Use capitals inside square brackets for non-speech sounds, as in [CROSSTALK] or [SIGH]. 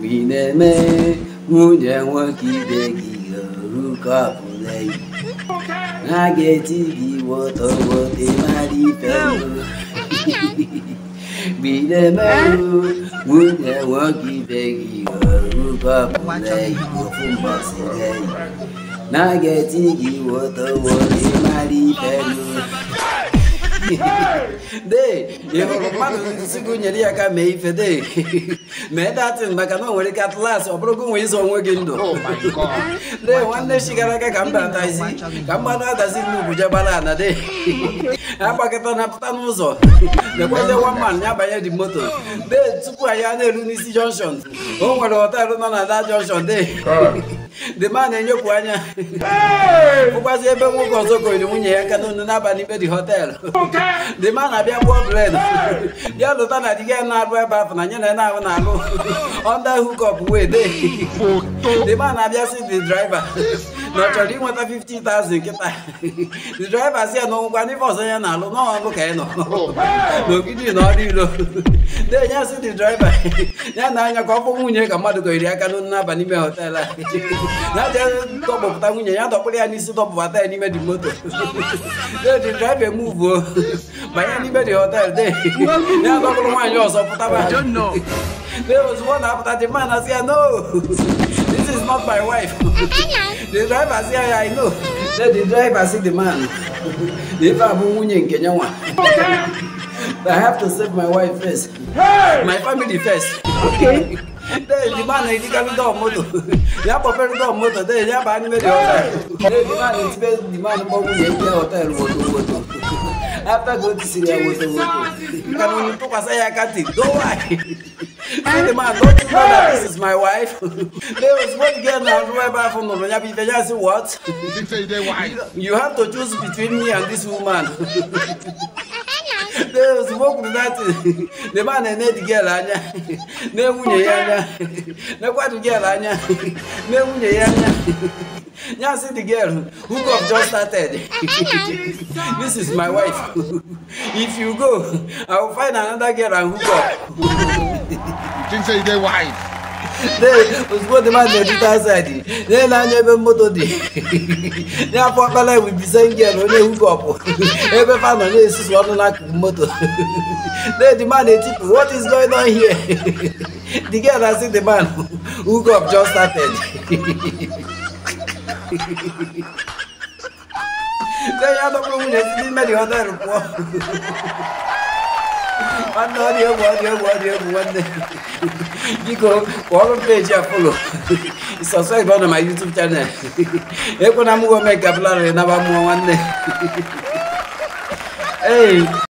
We neme munye nwa kibe gi ruka pulei. Na geti gi woto wote mari pelu. [LAUGHS] We neme munye nwa kibe gi ruka pulei ofumba silei. Na geti gi woto wote mari pelu de ịhụrụ mmadụ nsi gị nyere ya ka mee ife de mee datin maka na o nwere ike atlas ọ bụrụ gị nwee izo onwe gị ndụ de nwanne chi gara aga ka mba atazi ka mmanụ adazi n'ugwu jebara ana de agbakọta na pụta n'ụzọ dekwete waman ya banye di moto de tupu anyị a na-eru n'isi jọnshọn o nwere họtelụ nọ na da jọnshọn de dema na-enyepụ anya bụkwazi ebe nwoke ọzọ gonyere nwunye ya aka n'onu n'abalị ikpe dị dị dema na-abịa gbuo bred bịa lụta na diga na-arụ ebe afọ na nye na na-ahụ na-alụ ọnda hukọp wee dema na-abịa si dị draiva Nachori nweta 50,000 nkịta the driver si ya na ọgwụgwa n'ife ọzọ ya na-alụ n'ọnụ ka ị nọ n'ogidi na ọrụ ilo denya si the driver ya na anya ka ọ bụ nwunye ka mmadụ gọyiri aka n'ọnụ n'aba n'ime họtel a ya je dọkpụpụta nwunye ya dọkpụrụ ya n'isi dọpụbata ya n'ime di moto the driver emuvuo banye n'ime di họtel de ya dọkpụrụ nwaanyị ọzọ pụtaba There was one app that the man has here, no, [LAUGHS] this is not my wife. [LAUGHS] the driver say, I know. Mm-hmm. Then the driver see the man. [LAUGHS] The driver in Kenya. I have to save my wife first. Hey! My family first. Okay. Then the man is carrying the motor. They are preparing the motor. Then they are buying the hotel. Then the man is paying the man for money. He hotel motor motor. After going to Syria, motor motor. You can only talk as I can't think. Don't worry. Say the man, don't you know that this is my wife? [LAUGHS] there was one girl now who I buy from Nononya Bifeja. I said, what? you have to choose between me and this woman. [LAUGHS] there was one that [LAUGHS] the man and the girl anya. Ne wunye anya. never kwatu girl anya. Ne wunye anya. Now see the girl who have just started. this is my wife. if you go, I will find another girl and hook up think say you dey wide. ozugbo dị mmadụ edita asaịdị na-ele anya ebe moto dị n'afọ ọkpala ebubize ngel onye hook up. ebe fa nọ na-esusu ọnụ n'akụkụ moto na-edi man etipu what is going on here [LAUGHS] the girl has seen the man hook up just started na ya dọkpụrụ nwunye si n'ime dị họtelụ pụọ nwanne ọ dị egwu ọ dị egwu ọ dị egwu m peji apolo na ma yutub chanel ekwe bụlarị naba mmụọ nwanne ee